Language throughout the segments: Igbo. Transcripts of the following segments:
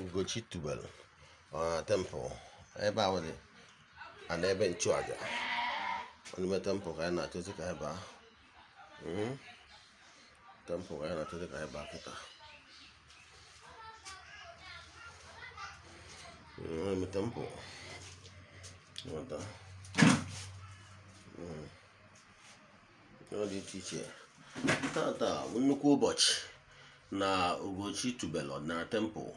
Ugochi tubelu na tempụl ebe a nwere na ebe nchụaja n'ime tempụl ka anyị na-achọzi hmm? ka anyị baa tempụl ka anyị na-achọzi ka anyị baa kịta n'ime tempụl nweta ọ dị iche iche tata nnukwu ụbọchị na Ugochi tubelu na tempụl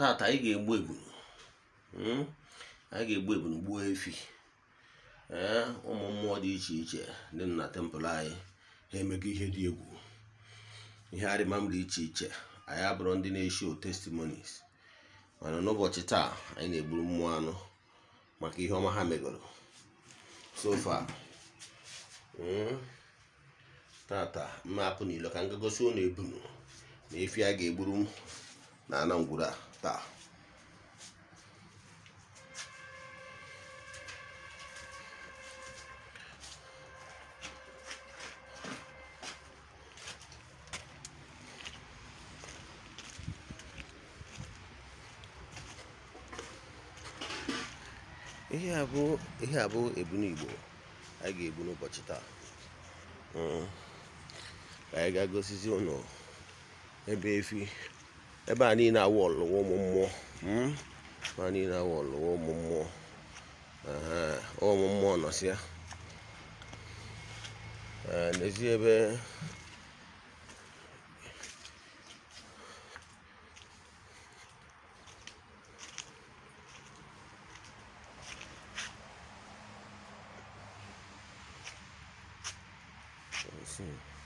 tata anyị ga-egbu ebunu, hmm? anyị ga-egbu ebunu gbuo efi ee eh, ụmụ mmụọ dị iche iche dị na tempụl anyị ha emego ihe dị egwu ihe arịmam dị iche iche anyị abụrụ ndị na-eshi testimonies mana n'ụbọchị taa anyị na-egburu mmụọ anụ maka ihe ọma ha megoro sofa hmm? tata mma apụ n'ilo ka m ga gosi ụlọ ebunu na efi a ga-egburu na anangwuru a taa. ihe abụ ihe ebunu igbo a ga-ebu n'ụbọchị taa ka anyị ga-agosizi ụlọ ebe efi ebe a niile awụ ọlụwo m mmụọ hmm? ebe a niile awụ ọlụwo m mmụọ ọwụ m mmụọ nọsịa eh, n'ezi ebe Let's see.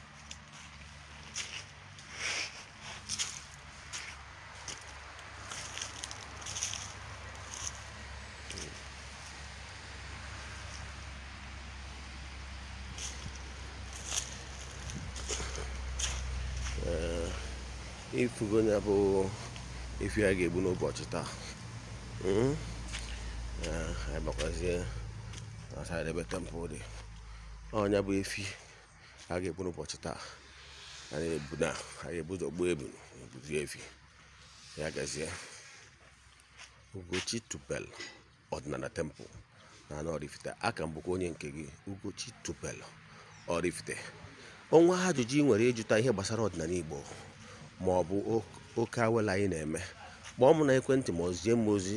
ifugo hmm? ah, ya bụ efi a ga-egbu n'ụbọchị taa anyị bakwazie na ebe tempụl dị ọnya bụ efi a ga-egbu n'ụbọchị taa anyị ebu na anyị ebu ụzọ gbuo ebu ebuzi efi ya gazie ugochi tupel ọdịnala tempụl na anọ Oraifite aka m bụkwa onye nke gị ugochi tupel Oraifite ọnwa ajụjụ ị nwere ịjụta ihe gbasara ọdịnala Igbo ma ọ bụ oke awela anyị na-eme kpọọ m na ekwentị ma ọ m ozi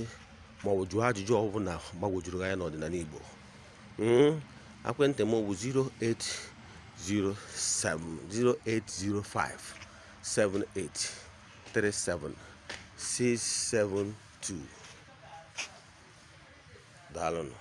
ma ọ bụ jụọ ajụjụ ọbụla gbagwojuru anya n'ọdịnala Igbo hmm? ekwentị m bụ 080708057837672 daalụnụ